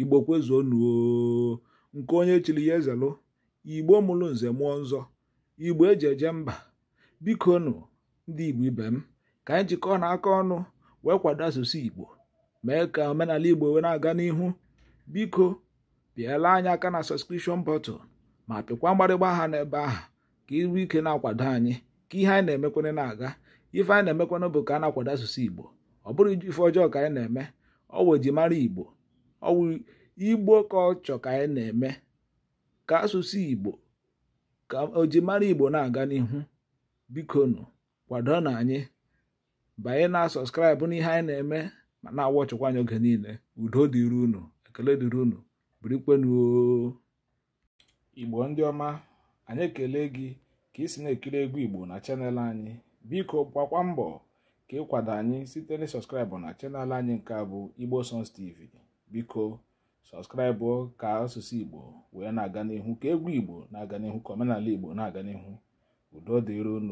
igbo kwezuo nuo nke onye chiri ya ezelụ igbo mụrụ nze mụọ nzọ igbo eji eje mba biko nụ ndị igbo ibe m ka anyị jikọọ na aka ọnụ wee kwado asụsụ igbo mee ka omenala igbo wee na-aga n'ihu biko pịala anyị aka na sọskrishọn bọtụl ma pịkwa mgbarịgba aha n'ebe ahụ ka iru ike na-akwado anyị ka ihe anyị na-emekwana na-aga ife anyị na-emekwana bụ ka a na-akwado asụsụ igbo ọ bụrụ iji ife ọjọọ ka anyị na-eme ọ wụ eji mara igbo ọwụ igbo kọlchọ ka anyị na-eme ka asụsụ igbo ka ojimara igbo na-aga n'ihu bikonu kwado na anyị banye na sọskraịbụ n'ihe anyị na-eme ma na-awọchịkwa anyị oge niile udo dịrị unu ekele dịrị unu birikwenuo igbo ndị ọma anyị ekele gị ka ị si na-ekiri egwu igbo na chanel anyị biko gbakwa mbọ ka kwado anyị site na sọskraịbụ na chanel anyị nke a bụ igbo sons tv biko sọskraịbụ ka asụsụ igbo wee na-aga n'ihu ka egwu igbo na-aga n'ihu ka omenala igbo na-aga n'ihu udo dịron